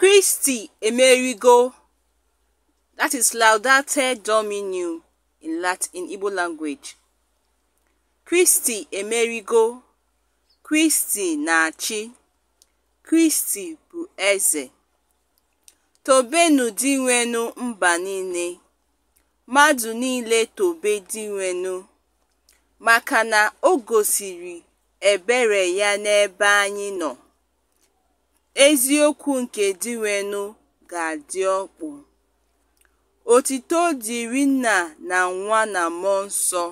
Kristi emerigo (Laudate in Kristi emerigo, Kristi na-achị, Kristi bụ eze. tobenu dinwenu mba niile, mmadụ niile tobe dinwenu maka na o gosiri ebere ya n'ebe anyị nọ. Eziokwu nke Dịịrịnụ Ga-adị Ọkpụ. Otuto dịịrị Nna na Nwa na Mmụọ Nsọ.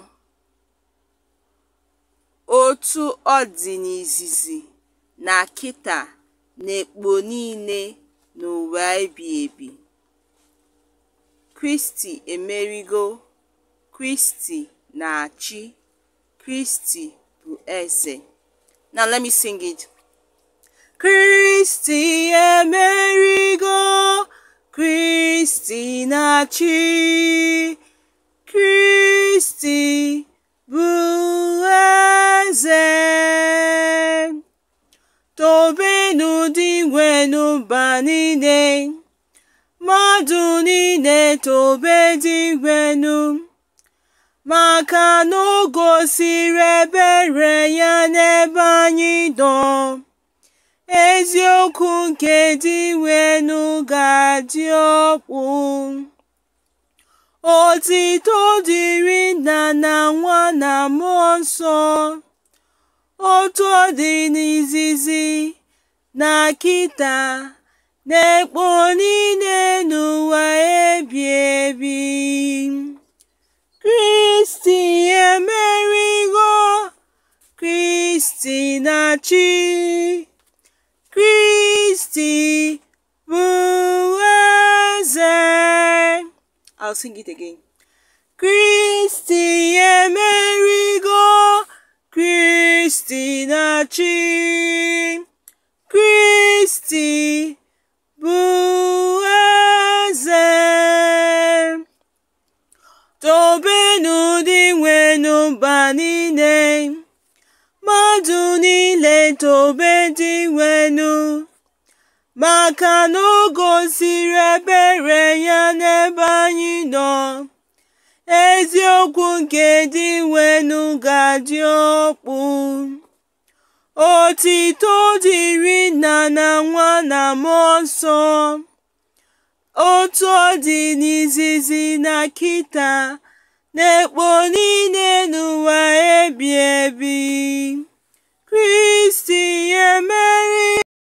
Otu ọ dị n'izizi na kịta na-ekpo niile n'ụwa ebighị ebi. Kristi emerigo, Kristi na-achị, Kristi bụ Eze. Now let me sing it. Kristi emerigo, Kristi na-achị, Kristi bụ eze. Tobenụ dị n'ụba niile, mmadụ niile tobe dị maka na o gosiri ebere ya n'ebe anyị nọ. eziokwu nke dị wenu ga-adị ọkpụ otito dịrị nna na nwa na mmụọ nsọ otu ọ dị n'izizi na kita na-ekpo niile n'ụwa ebi ebi kristi emerigo kristi na chi Christi Bueze. I'll sing it again. Christi Amerigo, Christina Chi, Christi Bueze. Tobenu di wenu bani tobe dị nwenu maka na o gosiri ebere ya n'ebe anyị nọ. Eziokwu nke dị nwenu ga-adị ọkpụ. Otito dịrị nna na nwa na mmụọ nsọ. Otu ọ dị n'izizi na kita na ekpo niile n'ụwa.